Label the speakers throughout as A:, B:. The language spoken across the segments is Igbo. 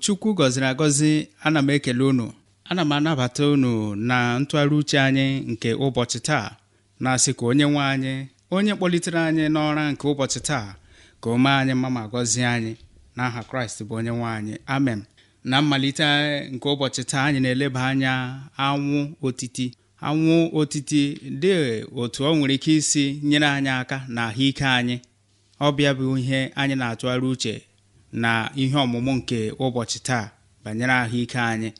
A: chukwu gọziri agọzi ana m ekele unu ana m anabata unu na ntụgharị uche anyị nke ụbọchị taa na-asị ka onye nwe anyị onye kpọlitere anyị n'ọra nke ụbọchị taa ka o mee anyị mma ma gọzie anyị n'aha kraịst bụ onye nwe anyị amen na mmalite nke ụbọchị taa anyị na-eleba anya anwụ otiti anwụ otiti dị otu ọ nwere ike isi nyere anyị aka na ahụike anyị ọ bịa bụ ihe anyị na-atụgharị uche na ihe ọmụmụ nke ụbọchị taa banyere ahụike anyị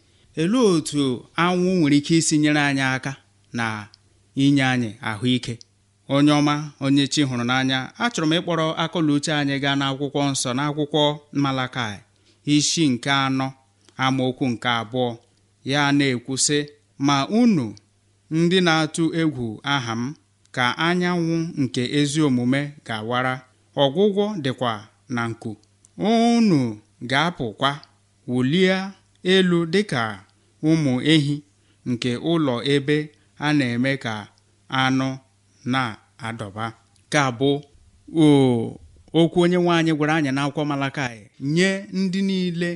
A: elee otu anwụ nwere ike isi nyere anyị aka na inye anyị ahụike onye ọma onye chi hụrụ n'anya achọrọ m ịkpọrọ akọla anyị gaa n'akwụkwọ nsọ n'akwụkwọ Malakai isi nke anọ amaokwu nke abụọ ya na-ekwu sị ma unu ndị na-atụ egwu aha m ka anyanwụ nke ezi omume ga-awara ọgwụgwọ dịkwa na nku unu ga-apụkwa wulie elu dịka ụmụ ehi nke ụlọ ebe a na-eme ka anụ na-adọba ka bụ okwu onye anyị gwara anyị n'akwụkwọ Malakaị nye ndị niile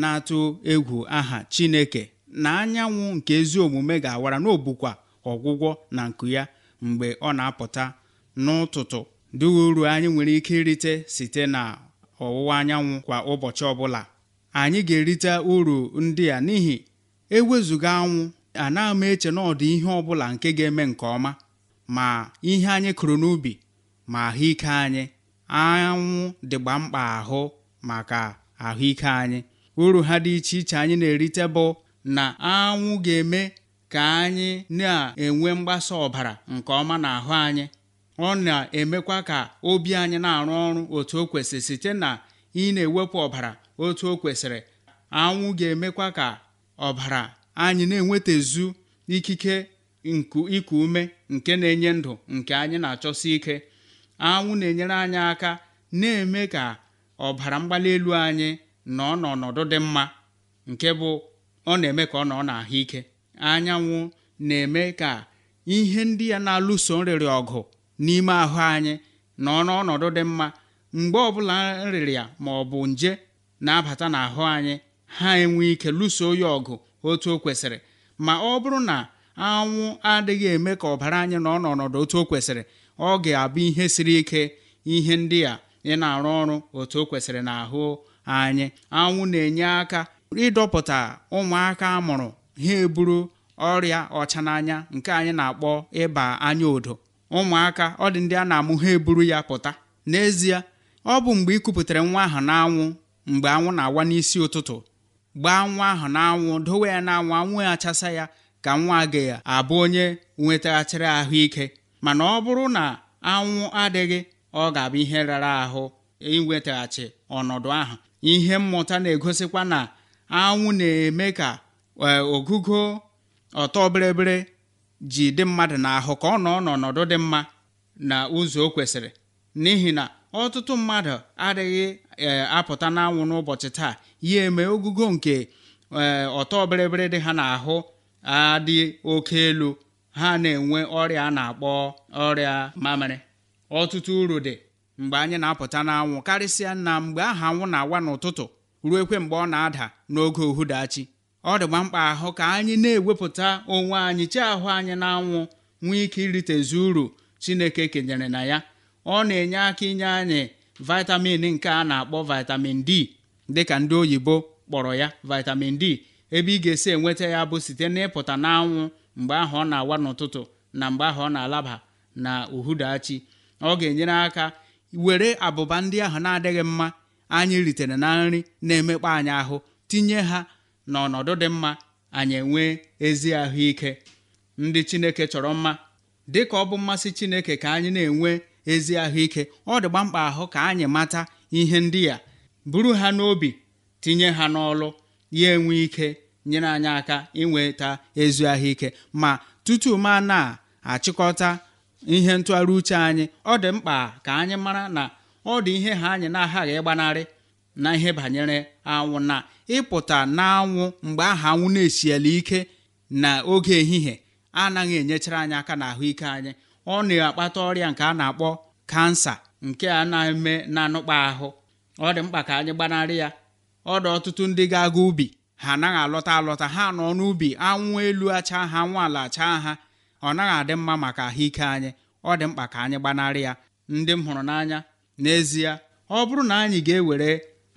A: na-atụ egwu aha Chineke na anyanwụ nke ezi omume ga-awara n'obukwa ọgwụgwọ na nku ya mgbe ọ na-apụta n'ụtụtụ dị uru anyị nwere ike irite site na ọwụwa anyanwụ kwa ụbọchị ọbụla anyị ga-erite uru ndị a n'ihi ewezuga anwụ anaghị m eche na ọdị ihe ọbụla nke ga-eme nke ọma ma ihe anyị kụrụ n'ubi ma ahụike anyị anwụ dịgba mkpa ahụ maka ahụike anyị uru ha dị iche iche anyị na-erite bụ na anwụ ga-eme ka anyị na-enwe mgbasa ọbara nke ọma n'ahụ anyị ọ na-emekwa ka obi anyị na-arụ ọrụ otu o kwesịrị site na ị na-ewepụ ọbara otu o kwesịrị anwụ ga-emekwa ka ọbara anyị na-enwetazu ikike ịkụ iku ume nke na-enye ndụ nke anyị na-achọsi ike anwụ na-enyere anyị aka na-eme ka ọbara mgbali elu anyị nọ n'ọnọdụ dị mma nke bụ ọ na-eme ka ọ nọ n'ahụike anyanwụ na-eme ka ihe ndị ya na-alụso nrịrị ọgụ n'ime ahụ anyị na ọnọdụ dị mma mgbe ọbụla nrịrịa ma ọ bụ nje na-abata n'ahụ anyị ha enwe ike lụso ya ọgụ otu o kwesịrị ma ọ bụrụ na anwụ adịghị eme ka ọbara anyị nọ n'ọnọdụ otu o kwesịrị ọ ga-abụ ihe siri ike ihe ndị a ị na-arụ ọrụ otu o kwesịrị ahụ anyị anwụ na-enye aka ịdọpụta ụmụaka amụrụ ha eburu ọrịa ọcha n'anya nke anyị na-akpọ ịba anya odo ụmụaka ọ dị ndị a na-amụ ha eburu ya pụta n'ezie ọ bụ mgbe ị kupụtara nwa ahụ n'anwụ mgbe anwụ na-awa n'isi ụtụtụ gbaa nwa ahụ n'anwụ dowe ya n'anwụ anwụ achasa ya ka nwa agaghị abụ onye nwetaghachiri ahụike mana ọ bụrụ na anwụ adịghị ọ ga-abụ ihe rara ahụ inwetaghachi ọnọdụ ahụ ihe mmụta na-egosikwa na anwụ na-eme ka eh, ogugo ọtọ bịrịbịrị ji dị mmadụ n'ahụ ka ọ nọ n'ọnọdụ dị mma na ụzọ o kwesịrị n'ihi na ọtụtụ mmadụ adịghị e, apụta n'anwụ n'ụbọchị taa ya eme ogugo nke e, ọtọ bịrịbịrị dị ha n'ahụ adị oke elu ha na-enwe ọrịa a na-akpọ ọrịa mamịrị ọtụtụ uru dị mgbe anyị na-apụta n'anwụ karịsịa na mgbe aha anwụ na-awa n'ụtụtụ ruo ekwe mgbe ọ na-ada n'oge uhudachi ọ dịgba mkpa ahụ ka anyị na-ewepụta onwe anyị chi ahụ anyị na-anwụ nwee ike zu uru chineke kenyere na ya ọ na-enye aka inye anyị vitamin nke a na-akpọ vitamin d dịka ndị oyibo kpọrọ ya vitamin d ebe ị ga-esi enweta ya bụ site n'ịpụta n'anwụ mgbe ahụ ọ na-awa n'ụtụtụ na mgbe ahụ ọ na-alaba na uhudachi ọ ga-enyere aka were abụba ndị ahụ na-adịghị mma anyị ritere na nri na-emekpa anyị ahụ tinye ha n'ọnọdụ dị mma anyị enwee ezi ahụike ndị chineke chọrọ mma dị ka ọ bụ mmasị chineke ka anyị na-enwe ezi ahụike ọ dị gbamkpa ahụ ka anyị mata ihe ndị ya buru ha n'obi tinye ha n'ọlụ ya enwe ike nyere anyị aka inweta ezi ahụike ma tutu ma na-achịkọta ihe ntụgharị uche anyị ọ dị mkpa ka anyị mara na ọ dị ihe ha anyị na-aghaghị ịgbanarị na ihe banyere anwụ na ịpụta n'anwụ mgbe aha anwụ na-esiela ike na oge ehihie anaghị enyechara anyị aka na ahụike anyị ọ na-akpata ọrịa nke a na-akpọ kansa nke a na-eme na-anụkpa ahụ ọ dị mkpa ka anyị gbanarị ya ọ dị ọtụtụ ndị ga-aga ubi ha anaghị alọta alọta ha nọ n'ubi anwụ elu acha ha anwụ ala acha ha ọ naghị adị mma maka ahụike anyị ọ dị mkpa ka anyị gbanarị ya ndị m hụrụ n'anya n'ezie ọ bụrụ na anyị ga-ewere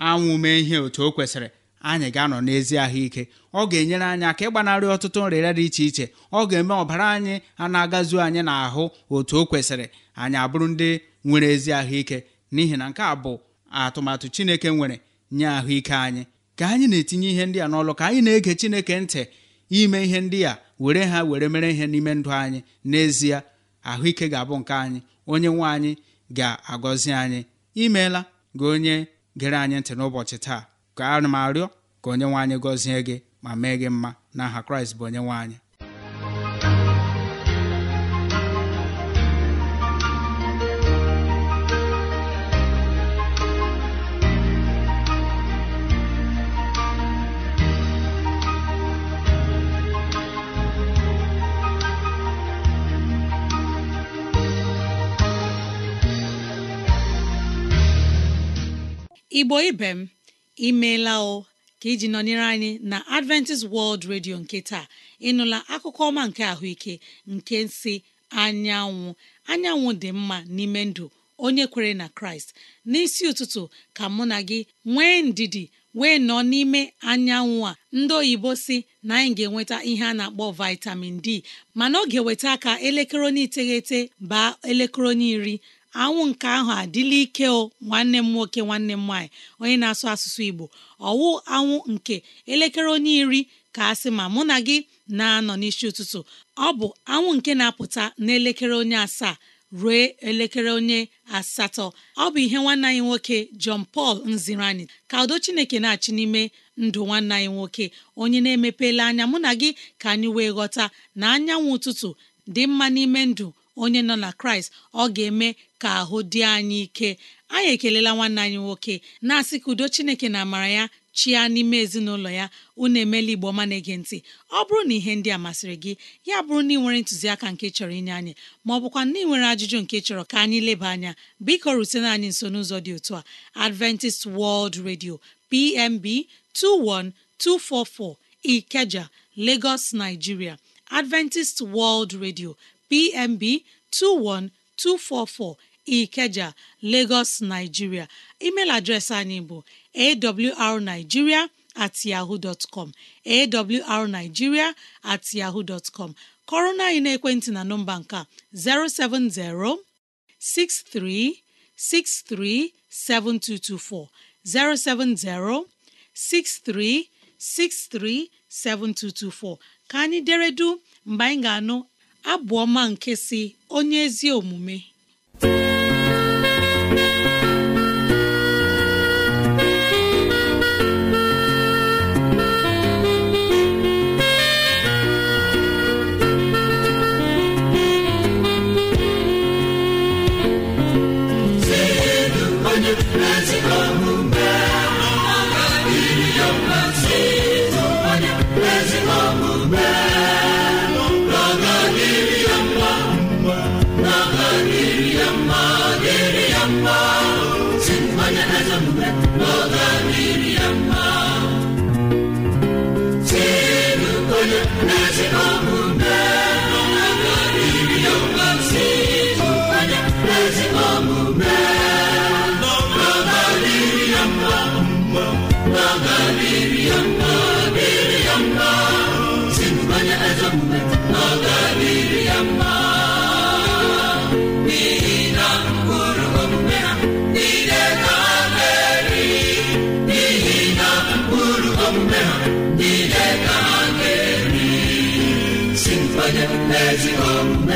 A: anwụ mee ihe otu o kwesịrị anyị ga-anọ n'ezi ahụike ọ ga-enyere anyị aka ịgbanarị ọtụtụ nrịrịa dị iche iche ọ ga-eme ọbara anyị a na-agazu anyị n'ahụ otu o kwesịrị anyị abụrụ ndị nwere ezi ahụike n'ihi na nke a bụ atụmatụ Chineke nwere nye ahụike anyị ka anyị na-etinye ihe ndị a n'ọlụ ka anyị na-ege Chineke ntị ime ihe ndị a were ha were mere ihe n'ime ndụ anyị n'ezie ahụike ga-abụ nke anyị onye nwe anyị ga-agọzi anyị imeela gị onye gere anyị ntị n'ụbọchị taa ka ana m arịọ ka onye nwanyị gọzie gị ma mee gị mma n'aha kraịst bụ onye nwanyị
B: igbo ibe m imeela o ka iji nọnyere anyị na Adventist World Radio nke taa ịnụla akụkọ ọma nke ahụike nke si anyanwụ anyanwụ dị mma n'ime ndụ onye kwere na Kraịst n'isi ụtụtụ ka mụ na gị nwee ndidi wee nọ n'ime anyanwụ a ndị oyibo si na anyị ga-enweta ihe a na-akpọ vitamin D mana ọ ga-eweta aka elekere onye iteghete baa elekere onye iri anwụ nke ahụ adịla ike o nwanne m nwoke nwanne m nwaanyị onye na-asụ asụsụ Igbo ọwụ anwụ nke elekere onye iri ka a sị ma mụ na gị na-anọ n'isi ụtụtụ ọ bụ anwụ nke na-apụta n'elekere onye asaa ruo elekere onye asatọ ọ bụ ihe nwanne anyị nwoke John pal nziri anyị ka udo Chineke na-achị n'ime ndụ nwanne anyị nwoke onye na-emepela anya mụ na gị ka anyị wee ghọta na anyanwụ ụtụtụ dị mma n'ime ndụ onye nọ na kraịst ọ ga-eme ka ahụ dị anyị ike anyị ekelela nwanne anyị nwoke na-asị ka udo chineke na amara ya chia n'ime ezinụlọ ya unu emela igbo ọma na-ege ntị ọ bụrụ na ihe ndị a masịrị gị ya bụrụ na ị nwere ntụziaka nke chọrọ inye anyị ma ọ bụkwa na ị nwere ajụjụ nke chọrọ ka anyị leba anya biko rutena anyị nso n'ụzọ dị otu a Adventist World Radio PMB 21244 Ikeja Lagos Nigeria Adventist World Radio PMB 21244 Ikeja Lagos Nigeria email adreesị anyị bụ awrnigeria at yahoo dot com awrnigeria at yahoo dot com kọrọ na anyị n'ekwentị na nọmba nke a 070 6363 7224 070 6363 7224 ka anyị deredu mgbe anyị ga-anụ abụ ọma nke si onye ezi omume
C: n'oge ezigbo omume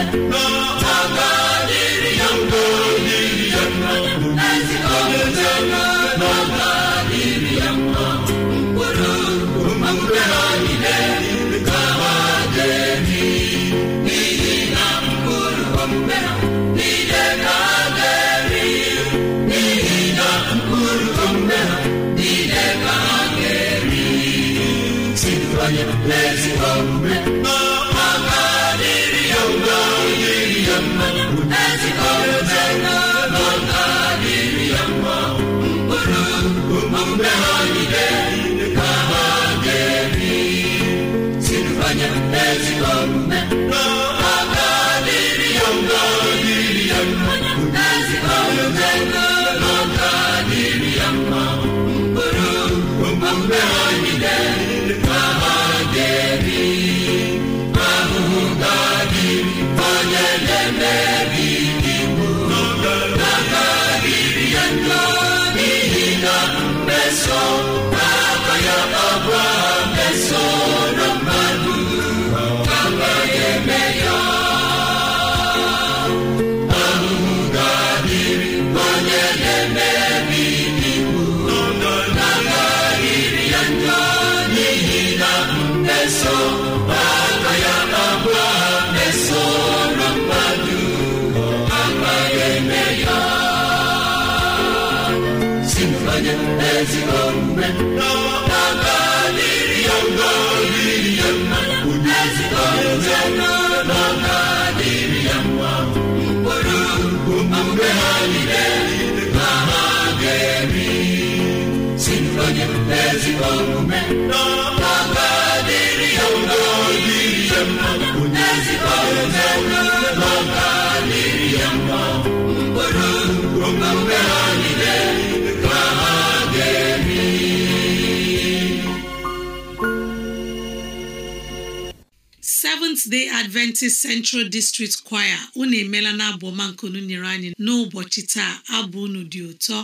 C: ya
B: Seventh Day Adventist Central District Choir unu emeela na abụọma nke unu nyere anyị n'ụbọchị taa abụ unu dị ụtọ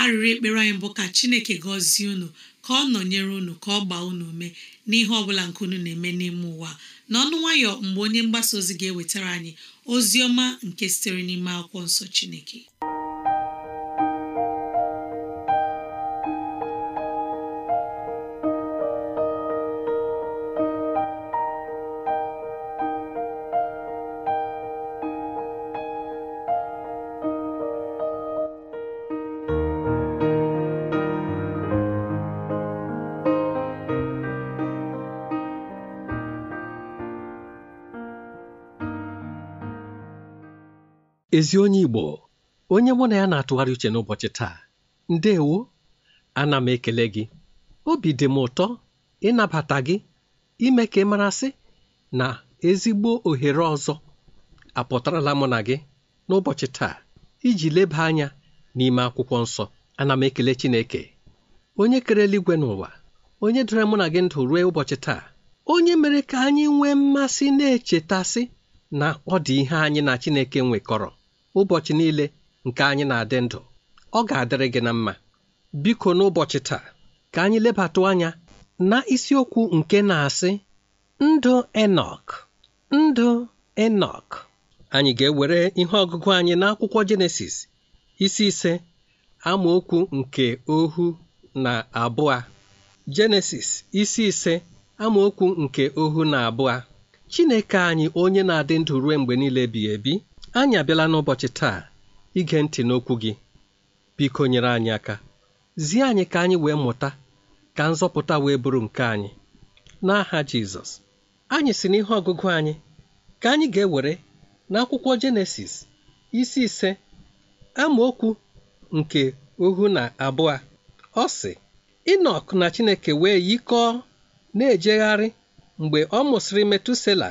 B: arịrị ekpere anyị bụ ka Chineke gọzie unu ka ọ nọnyere unu ka ọ gbaa unu ume n'ihe ọ bụla nke unu na-eme n'ime ụwa n'ọnụ nwayọ mgbe onye mgbasa ozi ga-ewetara anyị ozi ọma nke sitere n'ime akwụkwọ nsọ Chineke
D: ezi onye Igbo onye mụ na ya na-atụgharị uche n'ụbọchị taa ndewo ana m ekele gị obi dị m ụtọ ịnabata gị ime ka ị marasị na ezigbo ohere ọzọ apụtarala mụ na gị n'ụbọchị taa iji leba anya n'ime akwụkwọ nsọ ana m ekele Chineke onye kere eluigwe n'ụwa onye dere mụ na gị ndụ ruo ụbọchị taa onye mere ka anyị nwee mmasị na-echetasị na ọ dị ihe anyị na Chineke nwekọrọ ụbọchị niile nke anyị na-adị ndụ ọ ga-adịrị gị na mma biko n'ụbọchị taa ka anyị lebatụ anya na isiokwu nke na-asị ndụ enok ndụ enok anyị ga-ewere ihe ọgụgụ anyị n'akwụkwọ jenesis isi ise amaokwu nke ohu na abụọ jenesis isi ise amaokwu nke ohu na abụọ chineke anyị onye na-adị ndụ ruo mgbe niile ebighị ebi anyị abịala n'ụbọchị taa ige ntị n'okwu gị biko nyere anyị aka zie anyị ka anyị wee mụta ka nzọpụta wee bụrụ nke anyị n'aha Jizọs anyị si n'ihe ọgụgụ anyị ka anyị ga-ewere n'akwụkwọ Jenesis isi ise amaokwu nke ohu na abụọ ọ sị Inọk na Chineke wee yikọọ na-ejegharị mgbe ọ mụsịrị Metusela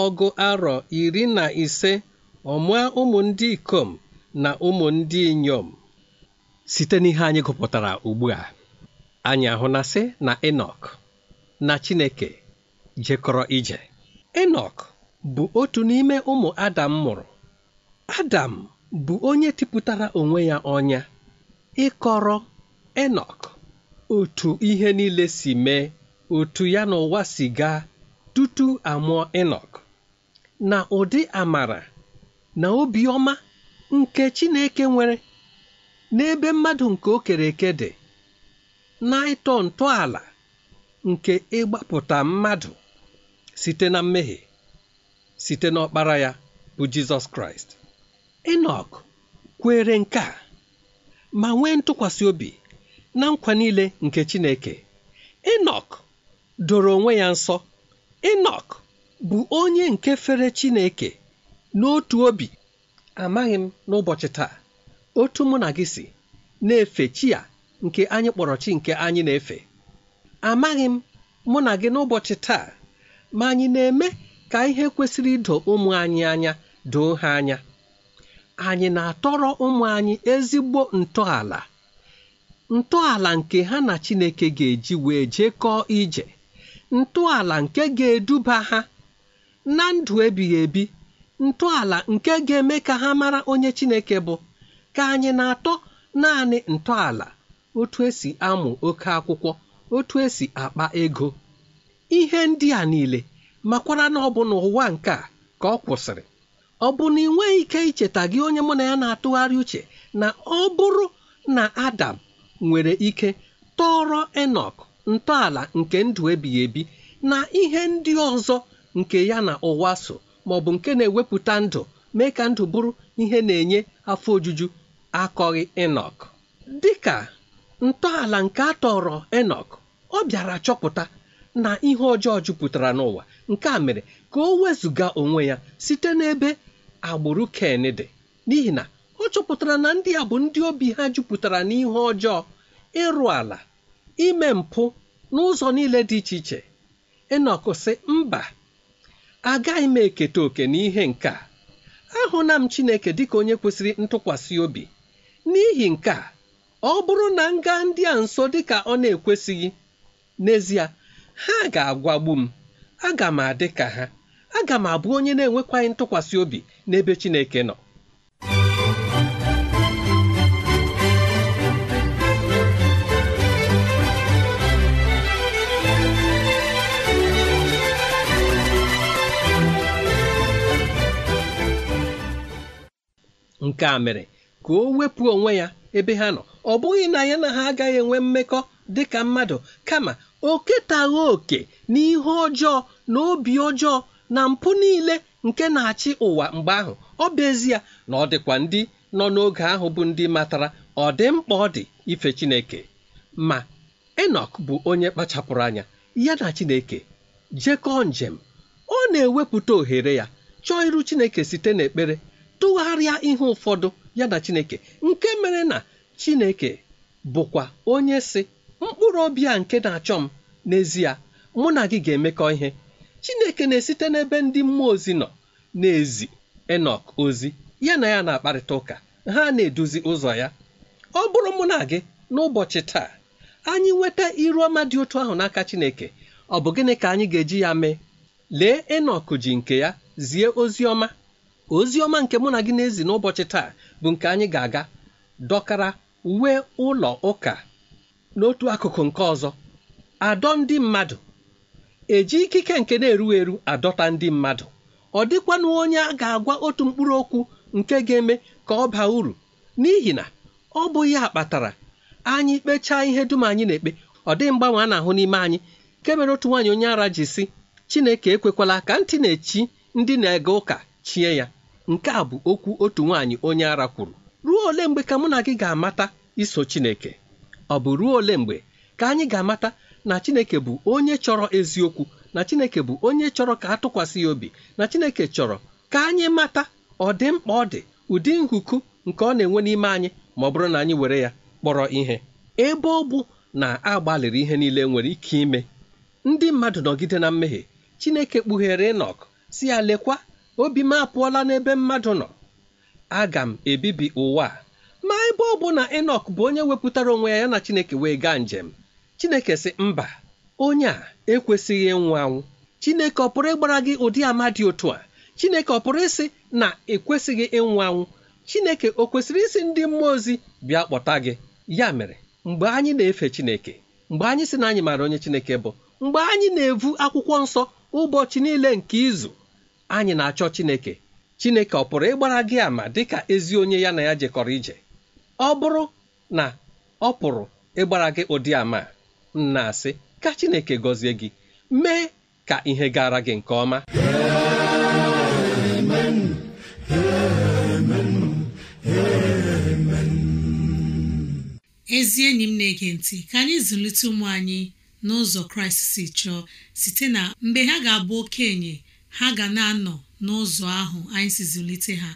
D: ọgụ arọ iri na ise Ọmụa ụmụ ndị ikom na ụmụ ndị inyom site n'ihe anyị gụpụtara ugbu a anyị ahụnasị na enok na chineke jekọrọ ije enok bụ otu n'ime ụmụ adam mụrụ adam bụ onye tipụtara onwe ya ọnya ịkọrọ enok otu ihe niile si mee otu ya n'ụwa ụwa si gaa tutu amụọ enok na ụdị amara na obiọma nke Chineke nwere n'ebe mmadụ nke o kere eke dị na ịtọ ntọala nke ịgbapụta mmadụ site na mmehie site n'ọkpara ya bụ Jizọs Kraịst Enok kwere nke a ma nwee ntụkwasị obi na nkwa niile nke Chineke Enok doro onwe ya nsọ Enok bụ onye nke fere Chineke n'otu obi amaghị m n'ụbọchị taa otu mụ na gị si na-efe chi ya nke anyị kpọrọ chi nke anyị na-efe amaghị m mụ na gị n'ụbọchị taa ma anyị na-eme ka ihe kwesịrị ịdọ ụmụ anyị anya doo ha anya anyị na-atọrọ ụmụ anyị ezigbo ntọala ntọala nke ha na Chineke ga-eji wee jekọọ ije ntọala nke ga-eduba ha na ndụ ebighị ebi ntọala nke ga-eme ka ha mara onye Chineke bụ ka anyị na-atọ naanị ntọala otu esi amụ oke akwụkwọ otu esi akpa ego ihe ndị a niile makwara na ọ bụ n'ụwa nke a ka ọ kwụsịrị ọ bụ na ị ike icheta gị onye mụ na ya na-atụgharị uche na ọ bụrụ na Adam nwere ike tọrọ enok ntọala nke ndụ ebighị ebi na ihe ndị ọzọ nke ya na ụwa so ma ọ bụ nke na-ewepụta ndụ mee ka ndụ bụrụ ihe na-enye afọ ojuju akọghị enok dịka ntọala nke a tọrọ enok ọ bịara chọpụta na ihe ọjọọ jupụtara n'ụwa nke a mere ka o wezụga onwe ya site n'ebe agbụrụ ken dị n'ihi na ọ chọpụtara na ndị a bụ ndị obi ha jupụtara n'ihe ọjọọ ịrụ ala ime mpụ n'ụzọ niile dị iche iche enok sị mba agaghị m eketa oke n'ihe nke a ahụla m Chineke dịka onye kwesịrị ntụkwasị obi n'ihi nke a ọ bụrụ na m gaa ndị a nso dịka ọ na-ekwesịghị n'ezie ha ga-agwagbu m aga m adị ka ha aga m abụ onye na-enwekwaghị ntụkwasị obi n'ebe Chineke nọ nke a mere ka o wepụ onwe ya ebe ha nọ ọ bụghị na ya na ha agaghị enwe mmekọ dị ka mmadụ kama o ketaghị oke n'ihe ọjọọ na obi ọjọọ na mpụ niile nke na-achị ụwa mgbe ahụ ọ bụ ezie na ọ dịkwa ndị nọ n'oge ahụ bụ ndị matara ọ dị mkpa ọ dị ife Chineke ma Enọk bụ onye kpachapụrụ anya ya na Chineke jekọọ njem ọ na-ewepụta ohere ya chọọ iru Chineke site n'ekpere tụgharịa ihe ụfọdụ ya na chineke nke mere na chineke bụkwa onye si mkpụrụ obi a nke na-achọ m n'ezie mụ na gị ga-emekọ ihe chineke na-esite n'ebe ndị mmụọ ozi nọ na-ezi enok ozi ya na ya na-akparịta ụka ha na-eduzi ụzọ ya ọ bụrụ mụ na gị n'ụbọchị taa anyị nweta iru ọma dị otu ahụ n'aka chineke ọ bụ gịnị ka anyị ga-eji ya mee lee enok ji nke ya zie ozi ọma ozi ọma nke mụ na gị na-ezi n'ụbọchị taa bụ nke anyị ga-aga dọkara uwe ụlọ ụka n'otu akụkụ nke ọzọ adọ ndị mmadụ eji ikike nke na-eru eru adọta ndị mmadụ ọ dịkwanụ onye a ga-agwa otu mkpụrụ okwu nke ga-eme ka ọ baa uru n'ihi na ọ bụ ya kpatara anyị kpechaa ihe dum anyị na-ekpe ọ dịghị mgbanwe a na-ahụ n'ime anyị nke mere otu nwaanyị onye ara ji si Chineke ekwekwala ka ntị na-echi ndị na-ege ụka chie ya nke a bụ okwu otu nwaanyị onye ara kwuru ruo ole mgbe ka mụ na gị ga-amata iso Chineke ọ bụ ruo ole mgbe ka anyị ga-amata na Chineke bụ onye chọrọ eziokwu na Chineke bụ onye chọrọ ka atụkwasị ya obi na Chineke chọrọ ka anyị mata ọdịmkpa mkpa ọ dị ụdị nhụku nke ọ na-enwe n'ime anyị ma ọ bụrụ na anyị were ya kpọrọ ihe ebe ọ bụ na agbalịrị ihe niile nwere ike ime ndị mmadụ nọgide na mmehie Chineke kpughere ịnọkụ si ya lekwa obi m apụọla n'ebe mmadụ nọ aga m ebibi ụwa ma ebe ọ bụ na enok bụ onye wepụtara onwe ya na chineke wee gaa njem chineke sị mba onye a ekwesịghị ịnwụ anwụ chineke ọ pụrụ ịgbara gị ụdị ama dị otu a chineke ọ pụrụ ịsị na ekwesịghị ịnwụ anwụ chineke ọ kwesịrị isi ndị mmụọ ozi bịa kpọta gị ya mere mgbe anyị na-efe chineke mgbe anyị si na anyị maara onye chineke bụ mgbe anyị na-evu akwụkwọ nsọ ụbọchị niile nke izu anyị na-achọ Chineke Chineke ọ pụrụ ịgbara gị ama dịka ezi onye ya na ya jekọrọ ije ọ bụrụ na ọ pụrụ ịgbara gị ụdị ama nna asị ka Chineke gọzie gị mee ka ihe gara gị nke ọma
C: amen amen
B: amen ezi enyi m na-ege ntị ka anyị zụlite ụmụ anyị n'ụzọ Kraịst si chọọ site na mgbe ha ga-abụ okenye ha ga na-anọ n'ụzọ ahụ anyị si zụlite ha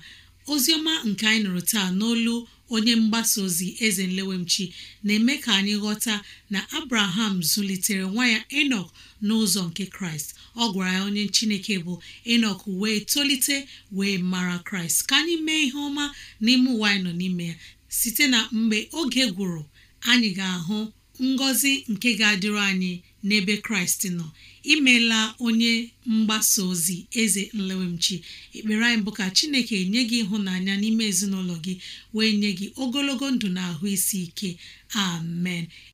B: oziọma nke anyị nụrụ taa n'olu onye mgbasa ozi eze nlewemchi na-eme ka anyị ghọta na abraham zụlitere nwa ya enok n'ụzọ nke kraịst ọ gwara ya onye chineke bụ enok wee tolite wee mara kraịst ka anyị mee ihe ọma n'ime ụwa anyị nọ n'ime ya site na mgbe oge gwụrụ anyị ga-ahụ ngọzi nke ga-adịrị anyị n'ebe kraịst nọ imela onye mgbasa ozi eze nlewemchi ekpere anyị bụ ka chineke nye gị ịhụnanya n'ime ezinụlọ gị wee nye gị ogologo ndụ na ahụ isi ike amen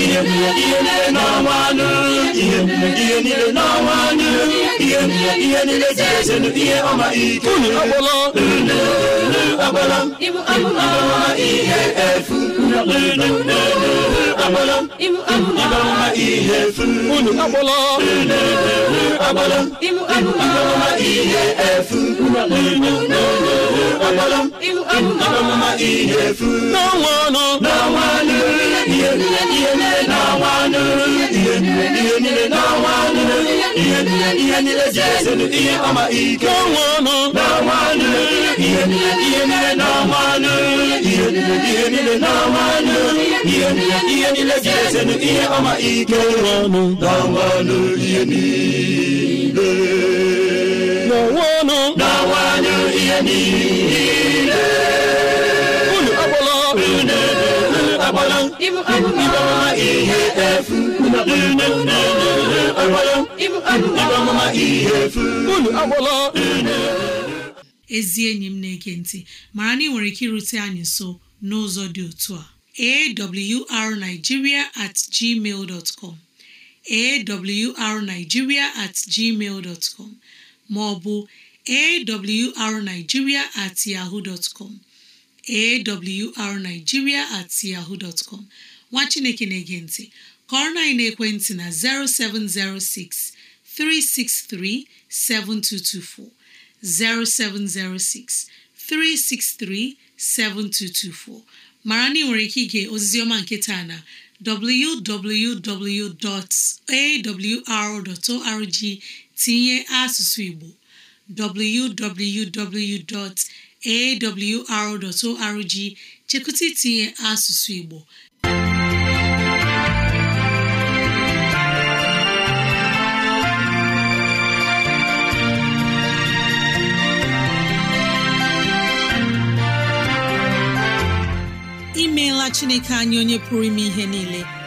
C: ihe niile n'ọnwanụ ihe ihe niile jere ihe ọma ike unu agbala unu ihe efu ọma ihe ọmụma ihe efu n'ọnwa ọnụ n'ọnwa anụ ihe niile ihe niile ihe ihe ihe ji ihe ọma ike ọnụ n'ọnwa ihe ihe ihe ihe niile n'onwe ọnụ na-awanye ihe niile unu agbala unu agbala ibu amụma ihe efu ihe efu
B: ezi enyi m na-ege ntị mara na ị nwere ike irute anyị nso n'ụzọ dị otu a awrnigeria at gmail dot com awrnigeria at gmail dot com ma ọ bụ awrnigeria at yahoo dot com at nwa Chineke na-ege ntị kọrọ na ekwentị na 0706 363 7224 0706 363 7224 mara na ị nwere ike ige ọma nke taa na www.awr.org tinye asụsụ Igbo www.awr.org chekwụta itinye asụsụ Igbo imeela Chineke anyị onye pụrụ ime ihe niile